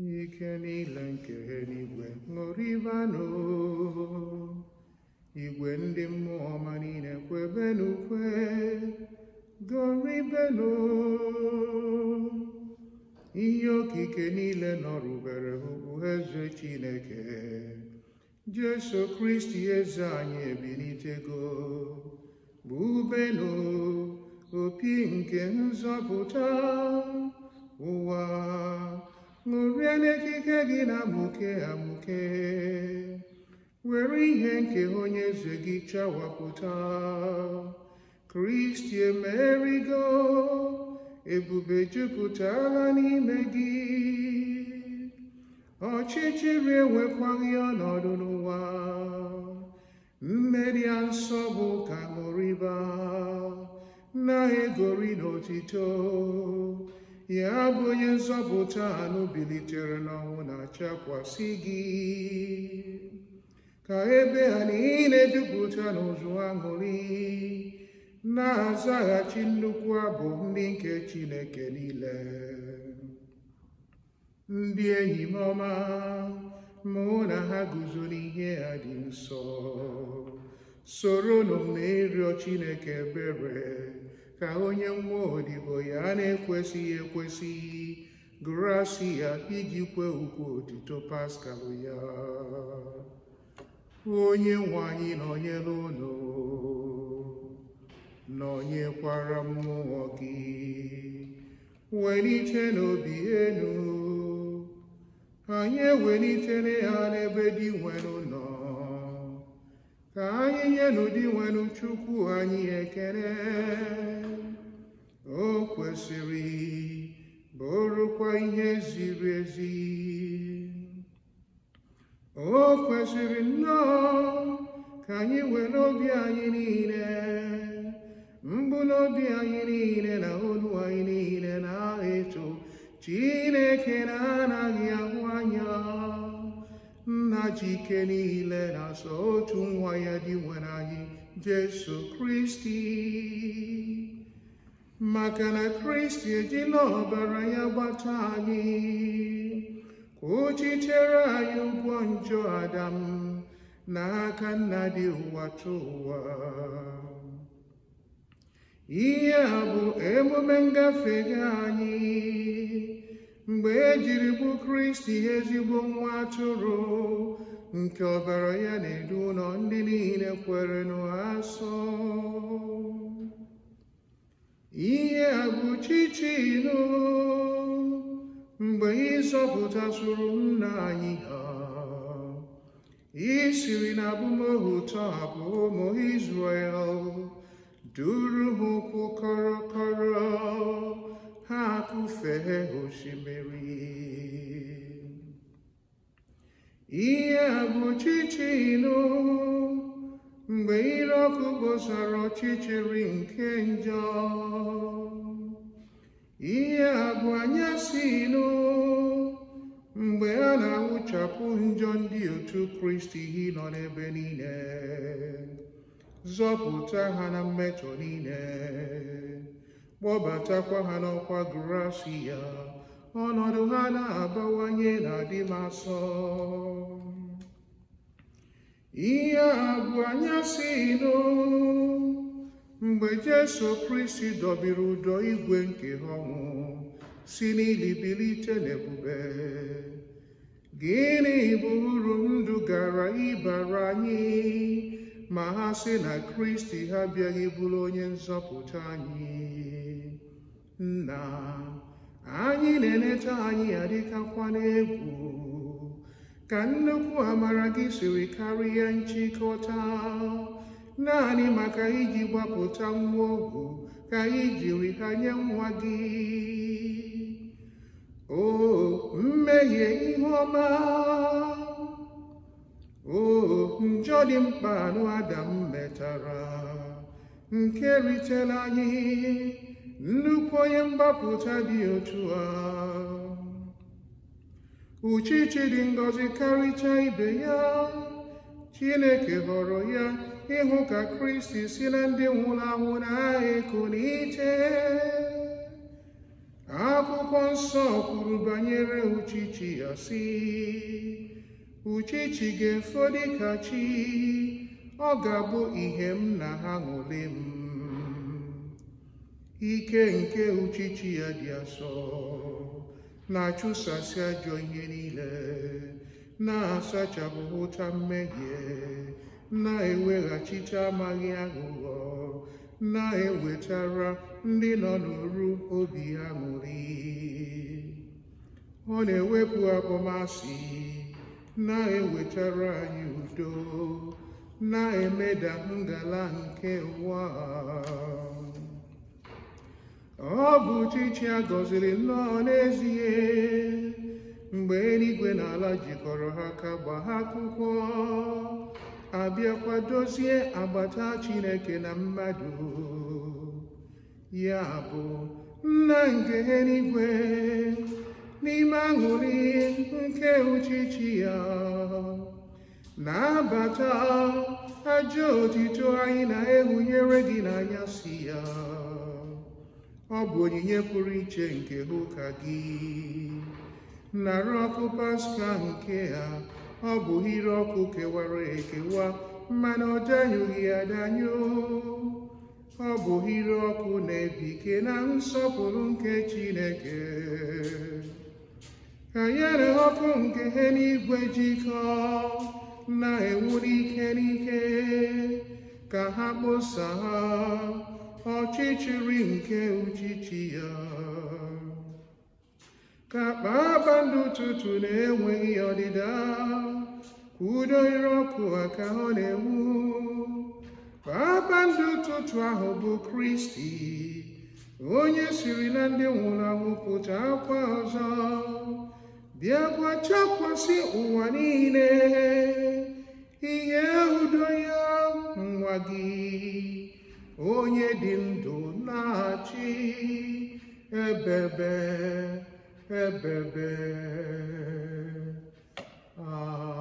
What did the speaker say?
ike niile nke eluigwe ṅụrịbanụ igwe ndị mmụọ ọma niile kwebenukwe gọrịbenụ ihe okike niile nọrụbere ugwu eze chineke jesu kristi eze anyị ebilitego bụbenụ opi nke nzọpụta ụwa ṅụrie n'ekike gị na-amụke amụke were ihe nke onye eze gị chawapụta kristi emerigo ebube jupụtala n'ime gị ọchịchịrị enwekwaghị ọnọdụ n'ụwa mmeri a nsọ bụ ka ṅụrịba na-egori n'otito ya bụ onye nzọpụta anụ bilitere n'ọnwụ na-achakwasị gị ka ebe ha niile jupụta n'ụzụ aṅụrị na-azaghachi nnukwu abụ ndị nke Chineke niile ndị enyi m ọma mụ na ha guzo n'ihe ha dị nsọ soro m na ịrịọ Chineke ebere ka onye nwa odibo ya na-ekwesịghị ekwesị gụrụ iji kwe ukwu otito paskal ya onye nwanyị nwe anyị nọnyere ụlọ nọnyekwara mmụọ gị welite n'obi enu anyị ewelitere ya n'ebe dị nwere ụlọ ka anyị nyenụ di nwenụ chukwu anyị ekele o kwesịrị bụrụkwa ihe ziri ezi o kwesịrị nnọọ ka anyị nwere obi anyị niile mbụ obi anyị niile na olu anyị niile na-eto Chineke na-anaghị ahụ anya nna ji ike niile na-asọ otu nwa ya dị nwere anyị Jesu Kristi maka na Kristi ejila ọbara ya gbata anyị ka anyị ụgwọ njọ Adam n'aka nna dị ụwa tụ ụwa ihe a bụ emume ngafe anyị mgbe ejiri jiri bụ kristi ezigbo nwa atụrụ nke ọbara ya na-edu ụlọ ndị niile kwere n'asọ ihe a bụ chichi mgbe mgbe ịzọpụtasụrụ nna anyị ha i siri na abụmohu tọhapụ ụmụ Izrel duru ha kọrọkọrọ ha kụfee osimiri ihe bụ ọchịchị ilo mgbe ire ọkụ gbosara ọchịchịrị nke njọ ihe bụ anyasị ilo mgbe a na-awụchapụ njọ ndị otu kristi nọ n'ebe niile zọpụta ha na mmetọ niile kpọbatakwa ha n'ọkwa grasi ya ọnọdụ ha na-abawanye na-adị m asọ ihe a bụ anyasị ino mgbe Jesu Kristi dọbiri ụdọ igwe nke ha ọnwụ si n'ilibilite n'ebube gịnị bụ uru ndụ gara ịbara anyị ma ha sị na Kristi ha bịaghị bụrụ onye nzọpụta anyị nna anyị na-eleta anyị adịkakwa n'egwu ka nnukwu amara gị siri karịa nchịkọta naanị maka iji gbapụta nwa ogwu ka anyị jiri ha nye nwa gị o mmehie ihe ọma o njọ dị mkpa anụ adam metara nke ritela anyị nnukwu onye mgbapụta dị otu a uchichi dị ngọzi karịcha ibe ya chineke họrọ ya ịhụ ka kristi si na ndị nwụrụ anwụ na-eku n'iche akwụkwọ nsọ kwuru banyere uchichi ya si uchichi ga-efo dịka chi ọ ga-abụ ihe m na ha ṅụli m ike nke uchichi ya dị asọ na-achụsasị ajọ ihe niile na-asachapụ ụta mmehie na-eweghachite amaghị aghụghọ na-ewetara ndị nọ n'oru obi aṅụrị. ọ na-ewepụ akpọmasị na-ewetara anyị udo na-emeda ngala nke ụwa ọ bụ chichi a gọziri nnọọ n'ezie mgbe eluigwe na ala jikọrọ ha ka gbaa ha akwụkwọ abịakwa dozie agbata Chineke na mmadụ ya bụ nna nke eluigwe n'ime aṅụrị nke ụchịchị ya na-abata ajọ otito anyị na-ehunyere gị n'anya si ya ọ bụ onyinye pụrụ iche nke ha ụka gị narị ọkụ paska nke a. ọ bụ ire ọkụ kewara ekewa mmanụ ọ danyụghị adanyụ ọ bụ hire ọkụ na-ebike na nsọpụrụ nke Chineke Enyere ọkụ nke ha n'igwe jikọ na-enwuli ike n'ike ka ha ha ọchịchịrị nke uchichi ya ka kpaakpa ndị ụtụtụ na-enweghị ọdịda ka udo ire ọkụ ka ọ na-enwu kpaaba ndị ụtụtụ ahụ bụ kristi onye siri na ndị nwụrụ anwụ pụta akwa ọzọ bịa gwachakwasị ụwa niile ihe udo ya nwa gị onye dị ndụ na-achị ebebe ebebe a